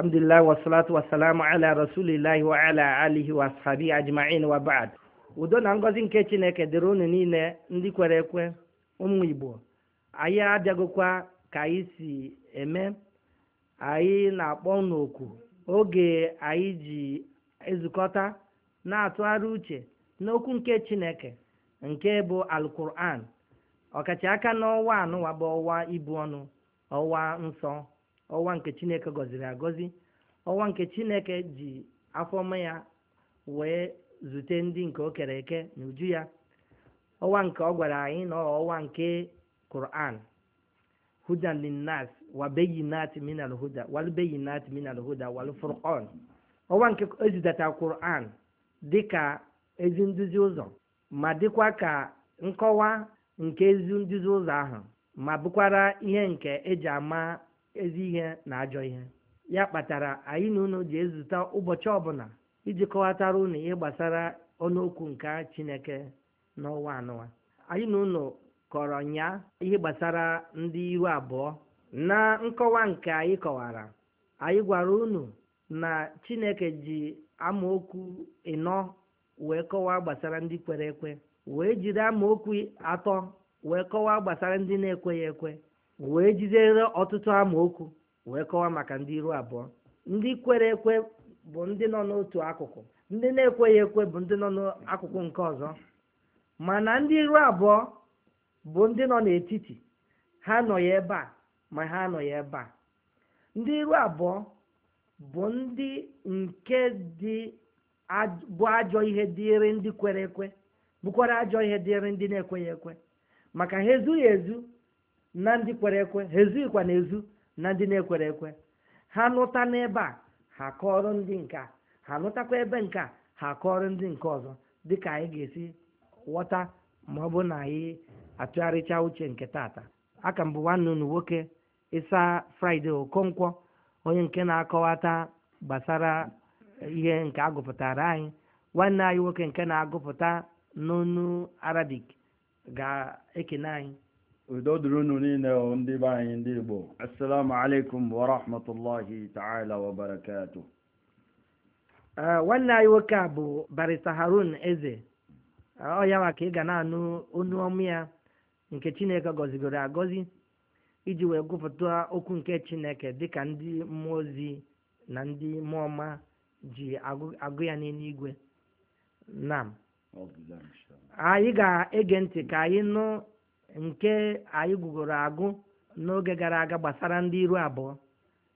alhamdulillah wasalatu wasalamu ala rasulillahi wa ala alihi wa ashabi ajma'in udo na ngọzi nke chineke dịrị unu niile ndị kwere ekwe ụmụ igbo anyị abịagokwa ka anyị si eme anyị na-akpọ unu oku oge anyị ji ezukọta na-atụgharị uche n'okwu nke chineke nke bụ alkuran ọkacha aka n'ọnwa anụwa bụ ibu ọnụ ọnwa nsọ ọwa nke chineke gọziri agọzi ọwa nke chineke ji afọma ya wee zute ndị nke o kere eke n'uju ya ọwa nke ọ gwara anyị na ọwa nke Quran hudan linnas wa bayinat min alhuda wal bayinat min alhuda wal furqan ọwa nke ezidata Quran dịka ezi nduzi ụzọ ma dịkwa ka nkọwa nke ezi nduzi ụzọ ahụ ma bụkwara ihe nke eji ama ezi ihe na ajọ ihe ya kpatara anyị na unu ji ezute ụbọchị ọbụla iji kọwatara unu ihe gbasara ọnụokwu nke chineke n'ọnwa anụwa anyị na unu kọrọ nya ihe gbasara ndị iru abụọ na nkọwa nke anyị kọwara anyị gwara unu na chineke ji amaokwu ịnọ wee kọwaa gbasara ndị kwere ekwe wee jiri amaokwu atọ wee kọwaa gbasara ndị na-ekweghị ekwe wee jizere ọtụtụ amaokwu wee kọwa maka ndị iru abụọ ndị kwere ekwe bụ ndị nọ n'otu akụkụ ndị na-ekweghị ekwe bụ ndị nọ n'akụkụ nke ọzọ mana ndị iru abụọ bụ ndị nọ n'etiti ha nọ ebe a ma ha anọghị ebe a ndị iru abụọ bụ ndị nke dị bụ ajọ ihe dịrị ndị kwere ekwe bụkwara ajọ ihe dịrị ndị na-ekweghị ekwe maka ha ezughị ezu na ndị kwere ekwe ha ezughịkwa na ezu na ndị na-ekwere ekwe ha nụta n'ebe a ha kọọrọ ndị nka ha nụtakwa ebe nke ha kọọrọ ndị nke ọzọ dị ka anyị ga-esi ghọta ma ọ bụ na anyị atụgharịcha uche nke tata aka mbụ nwanne unu nwoke ịsa fraịde okonkwo onye nke na-akọwata gbasara ihe nke agụpụtara anyị nwanne anyị nwoke nke na-agụpụta n'onu arabic ga-ekene anyị udo dịrị unu niile ndị be anyị ndị igbo assalamu alaikum wa rahmatullahi ta'ala wa barakatuh nwanne anyị nwoke a bụ barista harun eze ọ ya nwa ka ị ga na-anụ onu ọmụ ya nke chineke gọzigoro agọzi iji wee gụpụta okwu nke chineke dịka ndị mmụọ ozi na ndị mmụọ ọma ji agụ ya n'eluigwe nam anyị ga-ege ntị ka anyị nụ nke anyị gụgoro agụ n'oge gara aga gbasara ndị iru abụọ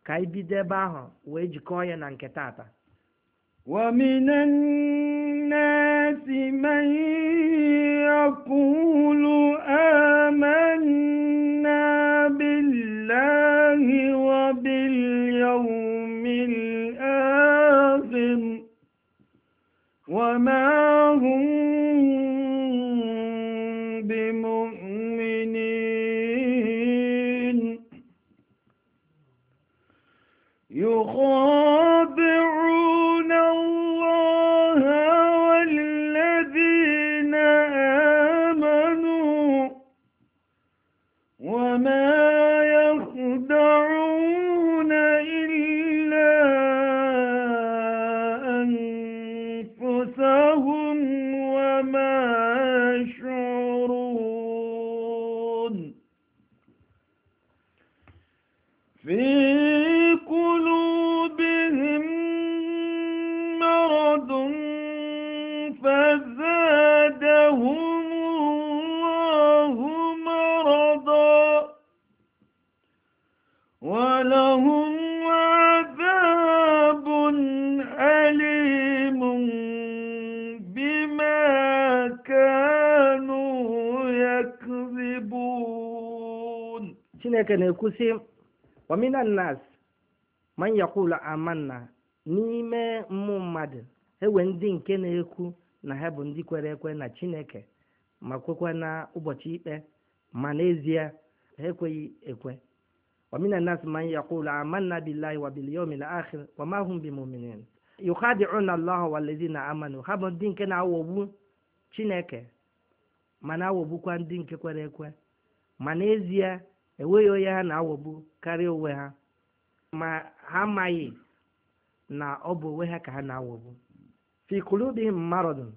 ka anyị bido ebe ahụ wee jikọọ ya na nke tata ومن الناس من يقول ولهم عذاب أليم بما كانوا يكذبون شنك نكسي ومن الناس من يقول آمنا n'ime mmụ mmadụ ewe ndị nke na-ekwu na ha bụ ndị kwere ekwe na chineke ma kwekwa na ụbọchị ikpe ma n'ezie ha ekweghị ekwe ومن الناس من يقول آمنا بالله وباليوم الآخر وما هم بمؤمنين يخادعون الله والذين آمنوا ha ndị nke na-awọgbu Chineke ma na-awọgbukwa ndị nke kwere ekwe ma n'ezie enweghị onye ha na-awọgbu karịa onwe ha ma ha amaghị na ọ bụ onwe ha ka ha na-awọgbu fi kulubihim maradun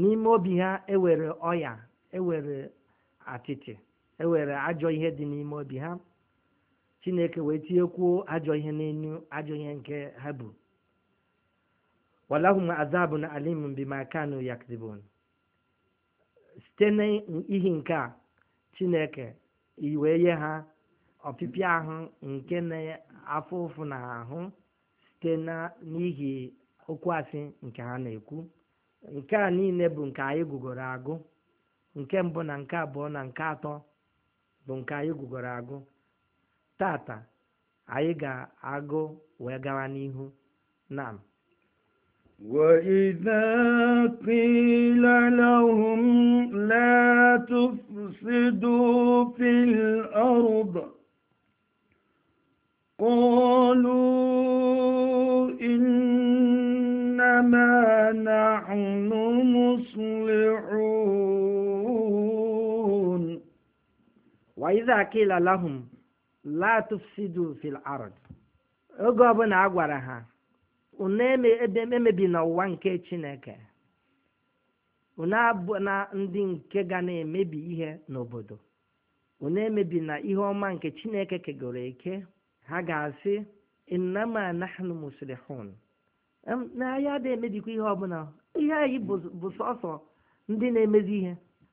n'ime obi ha ewere ọya ewere atịtị ewere ajọ ihe dị n'ime obi ha chineke wee tinyekwuo ajọ ihe n'enu ajọ ihe nke ha bụ walahum na alim bima kanu yakdibun site n'ihi nke a chineke iwee nye ha ọpịpịa ahụ nke na afọ ụfụ na ahụ site na n'ihi okwu asị nke ha na-ekwu nke a niile bụ nke anyị gụgoro agụ nke mbụ na nke abụọ na nke atọ bụ nke anyị gụgoro agụ tata anyị ga-agụ wee gawa n'ihu nam وإذا قيل لهم لا تفسدوا في الأرض قالوا إنما نحن مصلحون وإذا قيل لهم la fil ard oge ọbụla a gwara ha unu emebina ụwa nke chineke unu abụ na ndị nke ga na-emebi ihe n'obodo unu emebi na ihe ọma nke chineke kegoro eke ha ga-asị innama nahnu muslihun na anyị adịghị emebikwa ihe ọbụla ihe anyị bụ sọsọ ndị na-emezi ihe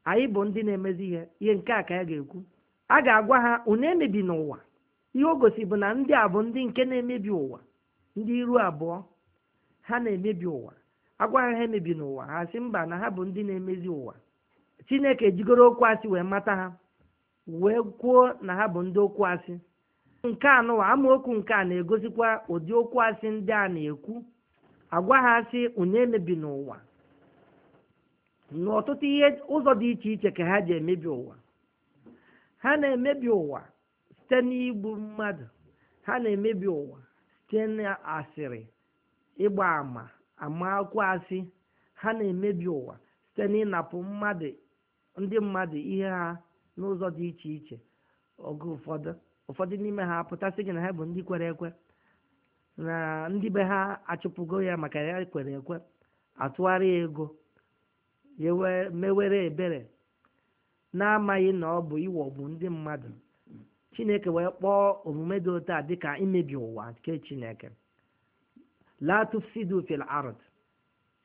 anyị bụ ndị na-emezi ihe ihe nke a ka ya ga-ekwu a ga-agwa ha unu emebi n'ụwa ihe o gosi bụ na ndị a bụ ndị nke na-emebi ụwa ndị iru abụọ ha na-emebi ụwa agwa ha emebi n'ụwa ha si mba na ha bụ ndị na-emezi ụwa chineke jigoro okwu asị wee mata ha wee kwuo na ha bụ ndị okwu asị nke anụwa amaokwu nke a na-egosikwa ụdị okwu asị ndị a na-ekwu agwa ha asị unu emebi n'ụwa n'ọtụtụ ihe ụzọ dị iche iche ka ha ji emebi ụwa ha na-emebi ụwa site n'igbu mmadụ ha na-emebi ụwa site n'asịrị ịgba ama akwụ asị ha na-emebi ụwa site n'ịnapụ mmadụ ndị mmadụ ihe ha n'ụzọ dị iche iche oge ụfọdụ ụfọdụ n'ime ha pụtasị gị na ha bụ ndị kwere ekwe na ndị be ha achụpụgo ya maka ya kwere ekwe atụgharị ego mewere ebere na-amaghị na ọ bụ iwọgbu ndị mmadụ chineke wee kpọọ omume dị otu a dịka imebi ụwa nke chineke la tufsidu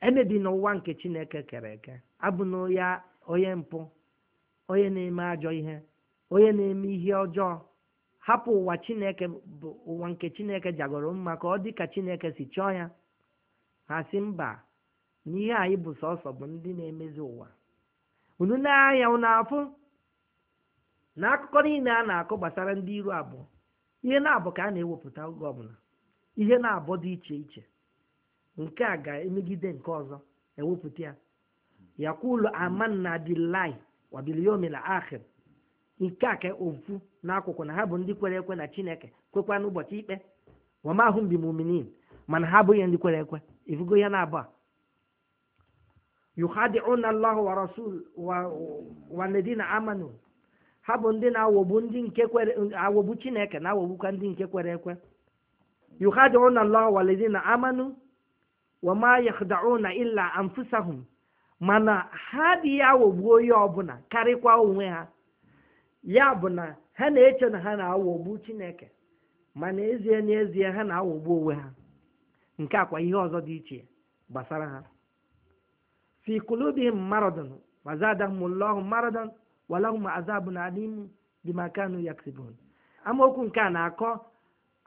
emebi n'ụwa nke chineke kere eke abụ onye mpụ onye na-eme ajọ ihe onye na-eme ihe ọjọọ hapụ ụwa chineke bụ ụwa nke chineke jagoro mma ka ọ dị ka chineke si chọọ ya ha si mba na ihe anyị bụ sọsọ bụ ndị na-emezi ụwa unu na-anya unu afụ na akụkọ niile a na-akụ gbasara ndị iru abụọ ihe na-abụ ka a na-ewepụta oge ọbụla ihe na-abụ dị iche iche nke a ga-emegide nke ọzọ ewepụta ya yakulu amanna billahi wa bil nke a ka ofu n'akwụkwọ na ha bụ ndị kwere ekwe na chineke kwekwa n'ụbọchị ikpe wa ma bi mana ha abụghị ndị kwere ekwe ifugo ya na-abụ a yukhadi'una Allah wa rasul wa walladina amanu ha bụ ndị na-awọgbu ndị nke kwere awọgbu Chineke na-awọgbukwa ndị nke kwere ekwe yukhadi'una Allah walladina amanu wa ma yakhda'una illa anfusahum mana ha adịghị aghọgbu onye ọbụla karịkwa onwe ha ya bụ na ha na-eche na ha na-aghọgbu Chineke mana ezie n'ezie ha na-aghọgbu onwe ha nke akwa ihe ọzọ dị iche gbasara ha fi qulubihim maradun wa zadahumullahu maradan wa lahum azabun alim bima kanu yaksibun amaokwu nke a na-akọ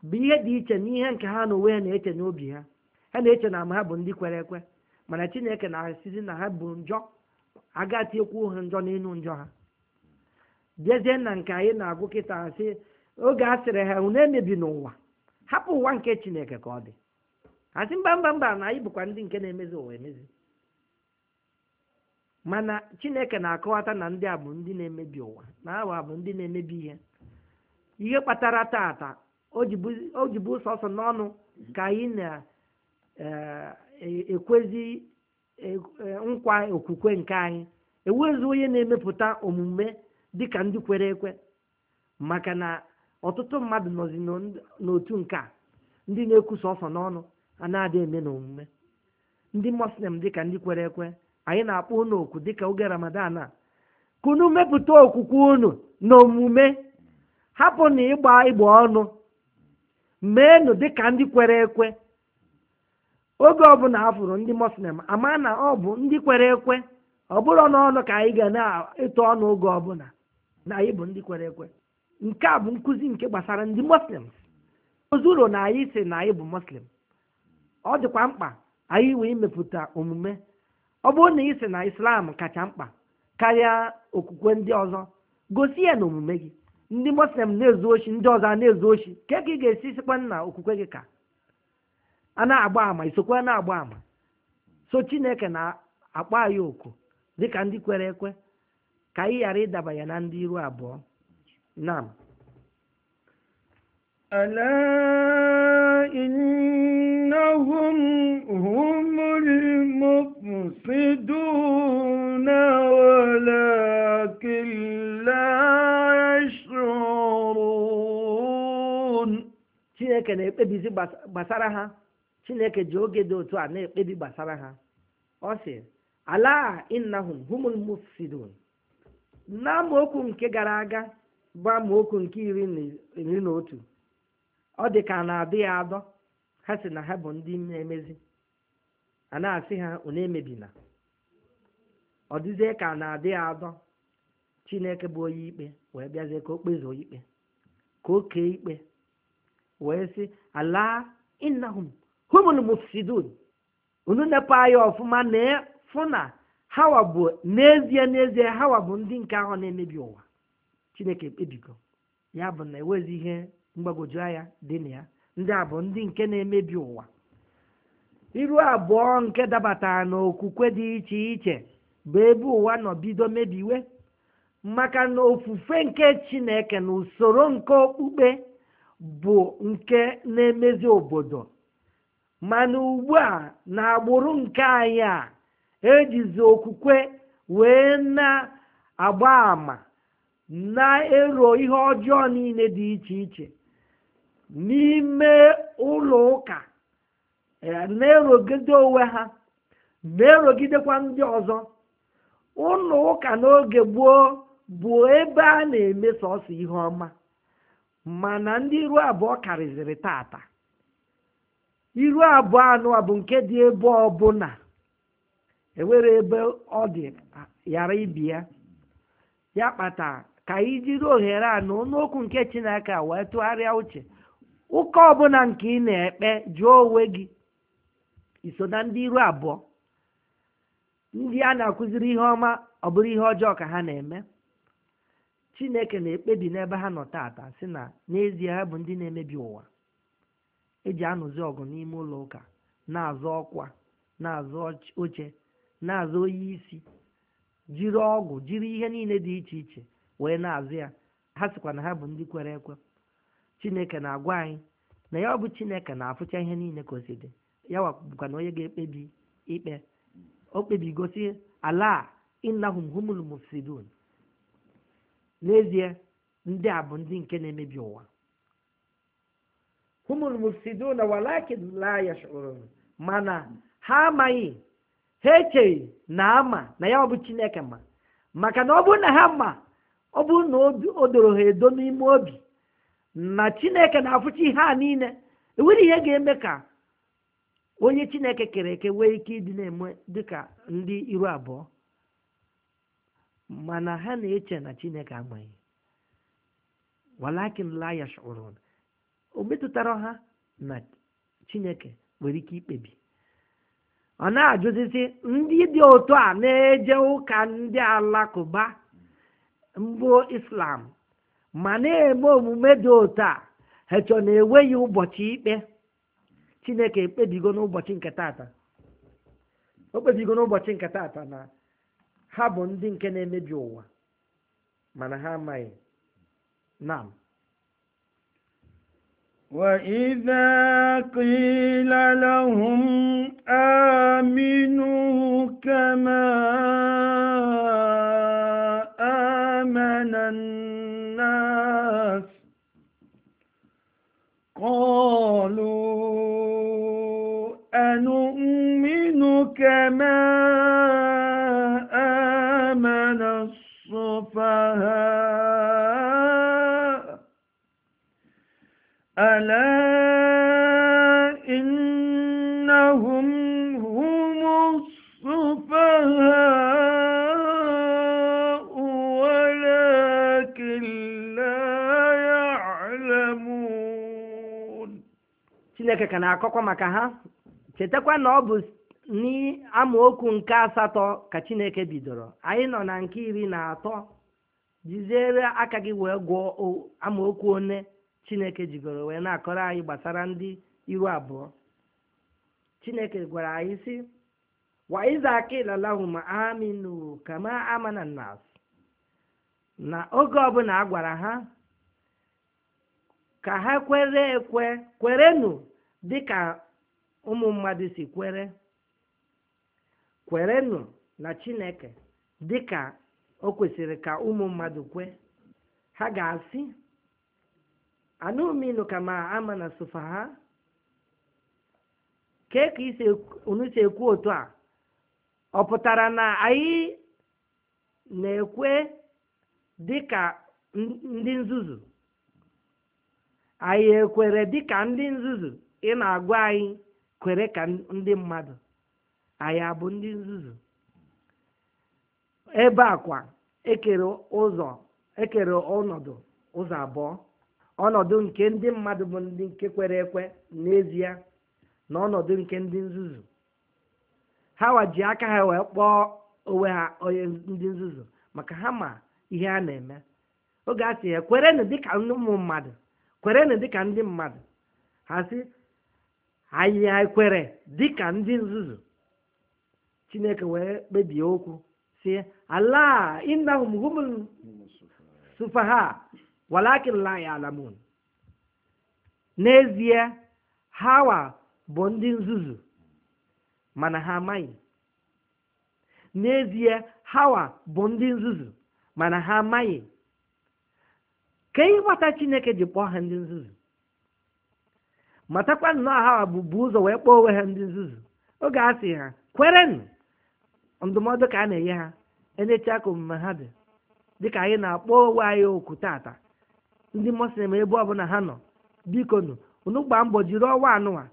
bụ ihe dị iche n'ihe nke ha na onwe ha na-eche n'obi ha ha na-eche na ama ha bụ ndị kwere ekwe mana chineke na-esizi na ha bụ njọ agatiekwu ha njọ n'elu njọ ha jezie na nke anyị na-agụ kịta sị oge a sịrị ha unu emebi n'ụwa hapụ ụwa nke chineke ka ọ dị asị mba mba mba na anyị bụkwa ndị nke na-emezi ụwa emezi mana chineke na-akọwata na ndị a bụ ndị na-emebi ụwa na awa bụ ndị na-emebi ihe ihe kpatara tata o jibu sọsọ n'ọnụ ka anyị na-ekwezi e, e, e, nkwa okwukwe nke anyị ewezu onye na-emepụta omume dịka ndị kwere ekwe maka na ọtụtụ mmadụ nọzi n'otu nke a ndị na-ekwu sọsọ n'ọnụ a na-adị eme na omume ndị dị ka ndị kwere ekwe anyị na-akpọ unu oku dịka oge ramadan a kunu mepụta okwukwe unu na omume hapụ na ịgba ịgba ọnụ meenụ dịka ndị kwere ekwe oge ọbụla afụrụ ndị moslem ama na ọ bụ ndị kwere ekwe ọ bụrụ n'ọnụ ka anyị ga na-eto ọnụ oge ọbụla na anyị bụ ndị kwere ekwe nke a bụ nkuzi nke gbasara ndị moslem ozuru na anyị si na anyị bụ moslem ọ dịkwa mkpa anyị wee mepụta omume ọ bụrụ na ị na islam kacha mkpa karịa okwukwe ndị ọzọ gosi ya na omume gị ndị muslim na-ezu ochi ndị ọzọ na-ezu ochi ka ka ị ga-esi sikwa na okwukwe gị ka a na-agba ama isokwe na-agba ama so chineke na-akpọ anyị oku ka ndị kwere ekwe ka anyị ghara ịdaba ya na ndị iru abụọ nam يفسدون ولكن لا يشعرون Chineke na-ekpebizi gbasara ha Chineke ji oge dị otu a na-ekpebi gbasara ha ọ sị ala innahum humul mufsidun na amaokwu nke gara aga bụ amaokwu nke iri na otu ọ dị ka na-adịghị adọ ha sị na ha bụ ndị na-emezi a na-asị ha unu emebina ọ ka na-adịghị adọ chineke bụ onye ikpe wee bịazie ka o kpezuo ikpe ka o kee ikpe wee sị ala innahum humul mufsidun unu nepa anya ọfụma na fụ na hawa bụ n'ezie n'ezie hawa bụ ndị nke ahụ na-emebi ụwa chineke ekpebigo ya bụ na enwezi ihe mgbagwoju anya dị na ya ndị a bụ ndị nke na-emebi ụwa iru abụọ nke dabatara n'okwukwe dị iche iche bụ ebe ụwa nọbido bido mebiwe maka na ofufe nke chineke na usoro nke okpukpe bụ nke na-emezi obodo mana ugbu a na agbụrụ nke anyị a ejizi okwukwe wee na-agba ama na-ero ihe ọjọọ niile dị iche iche n'ime ụlọ ụka Eh, na-erogide onwe ha na-erogidekwa ndị ọzọ ụlọ ụka n'oge gboo bụ ebe a na-eme sọsọ ihe ọma mana ndị iru abụọ karịziri tata iru abụọ anụ bụ nke dị ebe ọbụla ewere ebe ọ dị yara ibi ya ya kpata ka ijiri ohere a na n'okwu nke chineke wee tụgharịa uche ụka ọbụla nke ị na-ekpe jụọ onwe gị iso na ndị iru abụọ ndị a na-akụziri ihe ọma ọ bụrụ ihe ọjọọ ka ha na-eme chineke na-ekpebi n'ebe ha nọ taata si na n'ezie ha bụ ndị na-emebi ụwa eji anụzi ọgụ n'ime ụlọ ụka na-azọ ọkwa na-azọ oche na azụ oyi isi jiri ọgwụ jiri ihe niile dị iche iche wee na-azụ ya ha sikwa na ha bụ ndị kwere ekwe chineke na-agwa anyị na ya ọ bụ chineke na-afụcha ihe niile ka dị ya wakwa na onye ga-ekpebi ikpe o gosi ala innahum humul mufsidun n'ezie ndị a bụ ndị nke na-emebi ụwa humul mufsidun walakin la yashurun mana ha amaghị ha echeghị na ama na ya ọ bụ chineke ma maka na ọ bụrụ na ha ma ọ bụ na o doro ha edo n'ime obi na chineke na-afụchi ihe a niile enwere ihe ga-eme ka onye chineke kere eke nwee ike ịdị na-eme dịka ndị iru abụọ mana ha na-eche na chineke amaghị walakin layash yashurun o metụtara ha na chineke nwere ike ikpebi ọ na-ajụzizi ndị dị otu a na-eje ụka ndị alakụba mbụ islam ma na-eme omume dị otu a ha chọ na enweghị ụbọchị ikpe chineke ekpebigo n'ụbọchị nke taata o kpebigo n'ụbọchị nke taata na ha bụ ndị nke na-emebi ụwa mana ha amaghị na وإذا قيل لهم آمنوا كما آمن الناس قالوا كما آمن السفهاء ألا إنهم هم السفهاء ولكن لا يعلمون Chineke ka na-akọkwa maka ha chetakwa na ọ bụ n'amaokwu nke asatọ ka chineke bidoro anyị nọ na nke iri na atọ jiziere aka gị wee gụọ amaokwu one chineke jigoro wee na-akọrọ anyị gbasara ndị iru abụọ chineke gwara anyị si wa aminu kama amana nas na oge ọbụla a gwara ha ka ha kwere ekwe kwerenu dịka ụmụ mmadụ si kwere kwerenụ na chineke dị ka o kwesịrị ka ụmụ mmadụ kwe ha ga-asị anụminụ ma ama na sofa ha kee ka unu si ekwu otu a ọ pụtara na anyị na-ekwe dị ka ndị nzuzu anyị ekwere dị ka ndị nzuzu ị na-agwa anyị kwere ka ndị mmadụ Anya bụ ndị nzuzu ebe a kwa ekere ụzọ ekere ọnọdụ ụzọ abụọ ọnọdụ nke ndị mmadụ bụ ndị nke kwere ekwe n'ezie na ọnọdụ nke ndị nzuzu ha waji aka ha wee kpọọ onwe ha onye ndị nzuzu maka ha ma ihe a na-eme oge a sị ya kwerenụ dịka ụmụ mmadụ kwerenụ dịka ndị mmadụ ha sị anyị kwere dịka ndị nzuzu chineke wee kpebie okwu si ala innahum humul sufaha walakin la ya'lamun n'ezie hawa bụ ndị nzuzu mana ha amaghị n'ezie hawa bụ ndị nzuzu mana ha amaghị ka ịghọta chineke ji kpọọ ha ndị nzuzu matakwa nnọọ hawa bụ bụ ụzọ wee kpọọ onwe ha ndị nzuzu oge a sị ha kwerenụ ndụmọdụ ka a na-enye ha enyecha ka omume ha dị dịka anyị na-akpọ onwe anyị oku tata ndị muslim ebe ọbụla ha nọ bikonu unu gbaa mbọ jiri ọnwa anụwa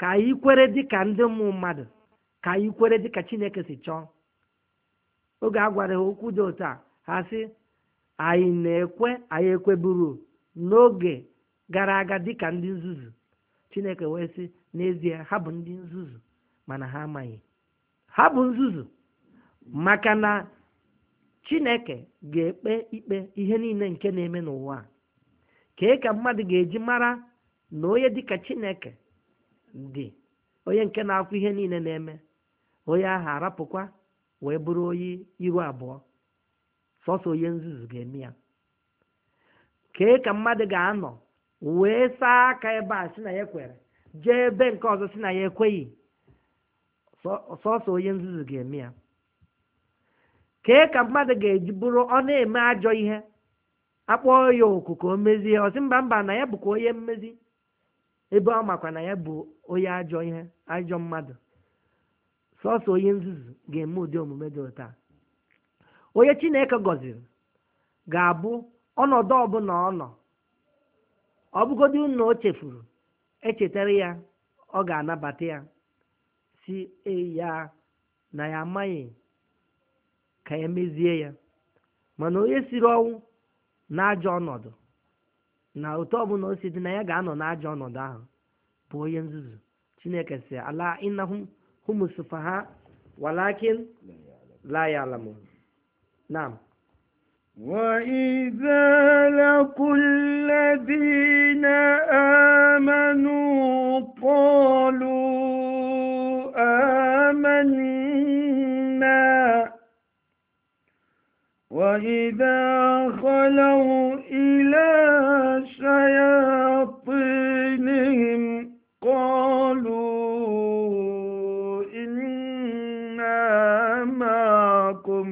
ka anyị kwere dịka ndị ụmụ mmadụ ka anyị kwere dịka chineke si chọọ oge a gwara ha okwu dị otu a ha sị anyị na-ekwe anyị ekweburu n'oge gara aga dịka ndị nzuzu chineke wee sị n'ezie ha bụ ndị nzuzu mana ha amaghị ha bụ nzuzu maka na chineke ga-ekpe ikpe ihe niile nke na-eme n'ụwa kee ka mmadụ ga-eji mara na onye dịka chineke dị onye nke na-akwụ ihe niile na-eme onye ahụ arapụkwa wee bụrụ onye iru abụọ sọsọ onye nzuzu ga-eme ya kee ka mmadụ ga-anọ wee saa aka ebe a si na ya kwere jee ebe nke ọzọ si na ya ekweghị sọsọ onye nzuzu ga-eme ya kee ka mmadụ ga-eji bụrụ ọ na-eme ajọ ihe akpọọ ya oku ka o mezie ọsị mba mba na ya bụkwa onye mmezi ebe ọ makwa na ya bụ onye ajọ ihe ajọ mmadụ sọsọ onye nzuzu ga-eme ụdị omume dị ụta onye chineke gọziri ga-abụ ọnọdụ ọbụla ọ nọ ọbụgodi unu o chefuru echetara ya ọ ga-anabata ya si ya na ya amaghị ka ya mezie ya mana onye siri ọnwụ n'ajọ ọnọdụ na otu ọbụla o si dị na ya ga-anọ n'ajọ ọnọdụ ahụ bụ onye nzuzu chineke si ala innahum hum ha walakin la ya'lamun وإذا لقوا الذين آمنوا قالوا wegidekọnọwụ ileesereha pụ lihim kolụamakom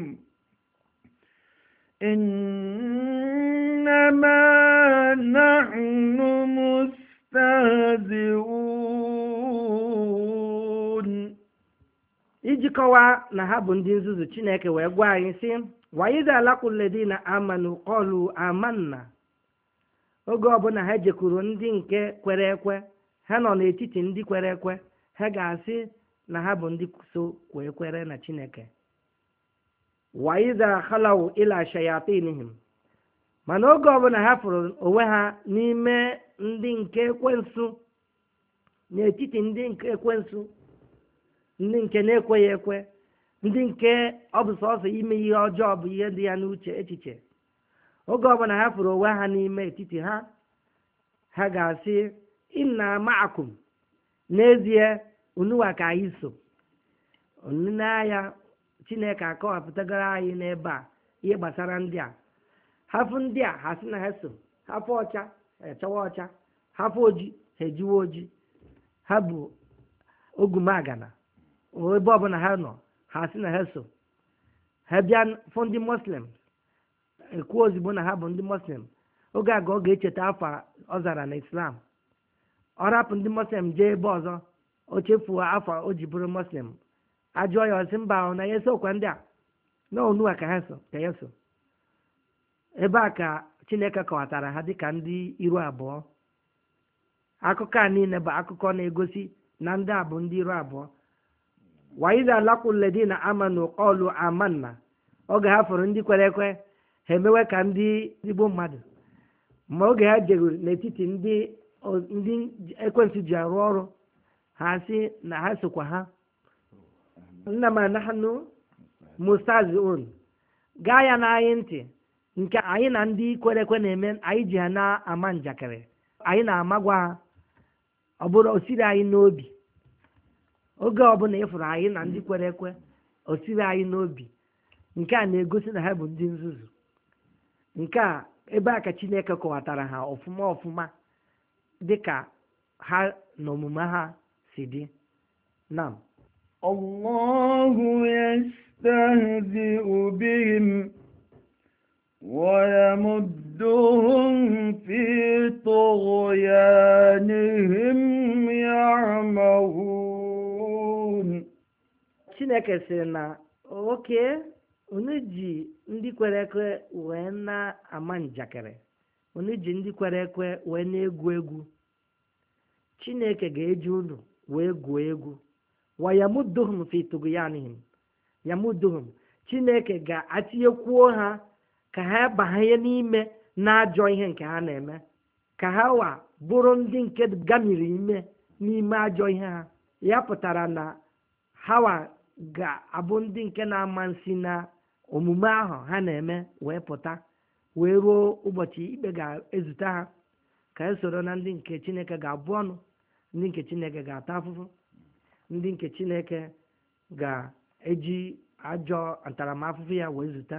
nemeamụtezi ijikọwaa na ha bụ ndị nzuzu chineke wee gwa anyị sị na laquledina amanu qalu amanna oge ọbụla ha jekwuru ndị nke kwere ekwe ha nọ n'etiti ndị kwere ekwe ha ga-asị na ha bụ ndị so kwee kwere na chineke waidha khalaw ila shayatinihim mana oge ọbụla ha fụrụ onwe ha n'ime ndị nke ekwensu n'etiti ndị nke ndị nke na-ekweghị ekwe ndị nke ọ bụ sọsọ ime ihe ọjọọ bụ ihe dị ya n'uche echiche oge ọbụla ha fụrụ onwe ha n'ime etiti ha ha ga-asị inna ma'akum n'ezie unuwa ka anyị so n'ahịa chineke akọwapụtagoro anyị n'ebe a ihe gbasara ndị a hafụ ndị a ha sị na ha so hafụ ọcha ha echawa ọcha hafụ oji ha ejiwa oji ha bụ ogumagana ebe ọbụla ha nọ ha si na ha so ha bịa fụ ndị ekwu ozugbo na ha bụ ndị moslem oge a ga ọ ga-echeta afọ ọ zara na islam ọ rapụ ndị moslem jee ebe ọzọ o chefuo afọ o ji bụrụ moslem ajụọ ya ọsị mba ahụ na ya esokwa ndị a na onua ka ha so ka ya so ebe a ka chineke kọwatara ha dịka ndị iru abụọ akụkọ a niile bụ akụkọ na-egosi na ndị a bụ ndị iru abụọ wa iza laqul ladina amanu qalu amanna oge ha fọrọ ndị kwere ekwe ha emewe ka ndị igbo mmadụ ma oge ha jegoro n'etiti ndị ndị ji arụ ọrụ ha si na ha sokwa ha nna ma nahnu mustaziun gaa ya na anyị ntị nke anyị na ndị kwere ekwe na-eme anyị ji ha na-ama njakịrị anyị na-amagwa ha ọ bụrụ anyị n'obi oge ọbụla ịfụrụ anyị na ndị hmm. kwere ekwe o siri anyị n'obi nke a na-egosi na ha bụ ndị nzuzu nke a ebe a ka chineke kọwatara ha ọfụma ọfụma ka ha na omume ha si dị nam Allahu yastahzi'u bihim ويمدهم في طغيانهم chineke sịrị na oke onye ji ndị kwere ekwe wee na-ama njakịrị onye ji ndị kwere ekwe wee na-egwu egwu chineke ga-eji unu wee gwuo egwu wa yamuduhum ya tughyanihim yamuduhum chineke ga-atinyekwuo ha ka ha banye n'ime na-ajọ ihe nke ha na-eme ka ha wa bụrụ ndị nke gamiri ime n'ime ajọ ihe ha ya pụtara na ha ga-abụ ndị nke na-ama na omume ahụ ha na-eme wee pụta wee ruo ụbọchị ikpe ga-ezute ha ka e soro na ndị nke chineke ga-abụ ọnụ ndị nke chineke ga-ata afụfụ ndị nke chineke ga-eji ajọ ntaramahụhụ ya wee zụta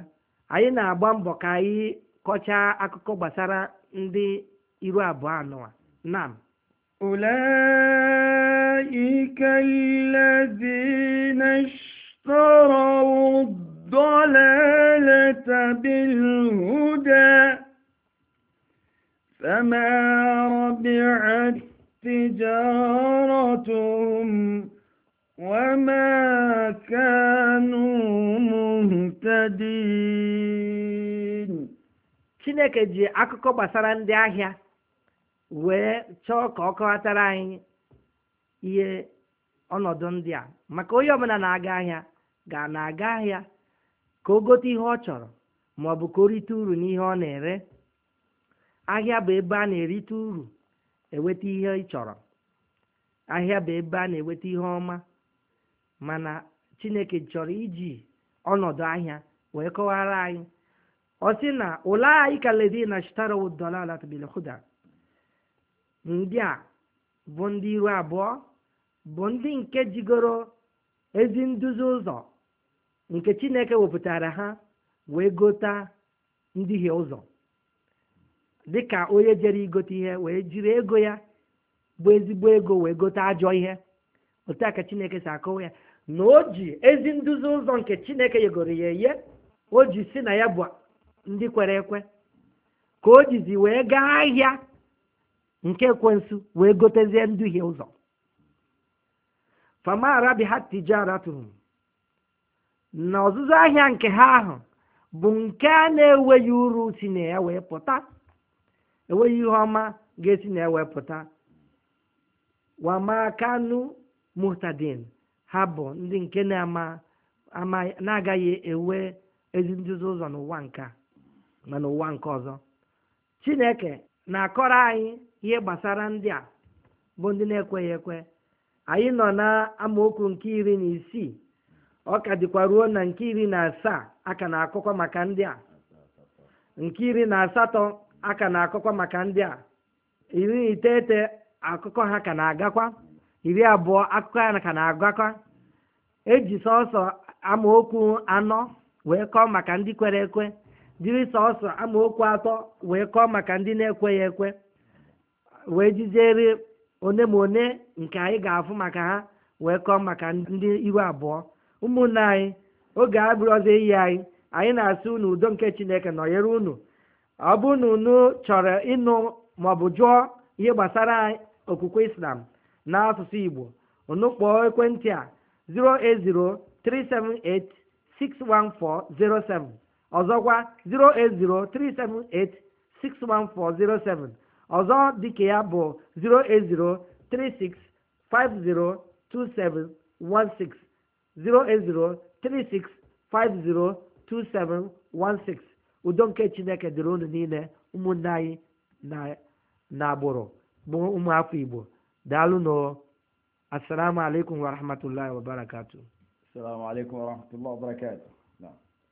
anyị na-agba mbọ ka anyị kọchaa akụkọ gbasara ndị iru abụọ anọ nam ike الذين اشتروا الضلالة بالهدى فما ربعت تجارتهم وما كانوا مهتدين Chineke ji akụkọ gbasara ndị ahịa wee chọọ ka anyị ihe ọnọdụ ndị a maka onye ọbụla na-aga ahịa ga na-aga ahịa ka o gote ihe ọ chọrọ ma ọ bụ ka o rite uru n'ihe ọ na-ere ahịa bụ ebe a na-erite uru enweta ihe ị chọrọ ahịa bụ ebe a na-enweta ihe ọma mana chineke chọrọ iji ọnọdụ ahịa wee kọwara anyị ọ sị na ulaika ndị a bụ ndị iru abụọ bụ ndị nke jigoro ezi nduzi ụzọ nke chineke wepụtara ha wee gota ndịghị ụzọ dịka onye jere igote ihe wee jiri ego ya bụ ezigbo ego wee gote ajọ ihe otu a ka chineke si akọwa ya na o ji ezi nduzi ụzọ nke chineke yegoro ya eye o ji si na ya bụ ndị kwere ekwe ka o jizi wee gaa ahịa nke ekwensu wee gotezie nduhie ụzọ fama rabihat tijaratuhum na ọzụzụ ahịa nke ha ahụ bụ nke a na-enweghị uru si na ya wee pụta enweghị ihe ọma ga-esi na ya wee pụta muhtadin ha bụ ndị nke na-ama ama na-agaghị enwe ezi ụzọ n'ụwa nke ma n'ụwa nke ọzọ chineke na-akọrọ anyị ihe gbasara ndị a bụ ndị na-ekweghị ekwe anyị nọ na amaokwu nke iri na isii ọ ka dịkwa ruo na nke iri na asaa aka na akụkọ maka ndị a nke iri na asatọ aka na akụkọ maka ndị a iri na iteghete akụkọ ha ka na-agakwa iri abụọ akụkọ ha ka na-agakwa eji sọsọ amaokwu anọ wee kọọ maka ndị kwere ekwe jiri sọsọ amaokwu atọ wee kọọ maka ndị na-ekweghị ekwe wee jijeri one ma one nke anyị ga-afụ maka ha wee kọọ maka ndị iru abụọ ụmụnne anyị oge abụrụ ọzọ iyi anyị anyị na-asị unu udo nke chineke nọnyere unu ọ bụ unu chọrọ ịnụ maọbụ jụọ ihe gbasara okwukwe islam n'asụsụ igbo unu kpọọ ekwentị a 08037861407 ọzọkwa 08037861407 ọzọ dịka ya bụ 08036502716 udo nke chineke dịrị unu niile ụmụnne anyị na agbụrụ bụ ụmụafọ igbo daalụ nụ assalamu alaikum warahmatullahi wabarakatuh assalamu alaikum warahmatullahi wabarakatuh